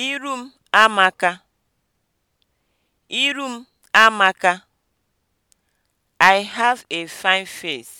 Iru m amaka. Iru m amaka. I have a fine face.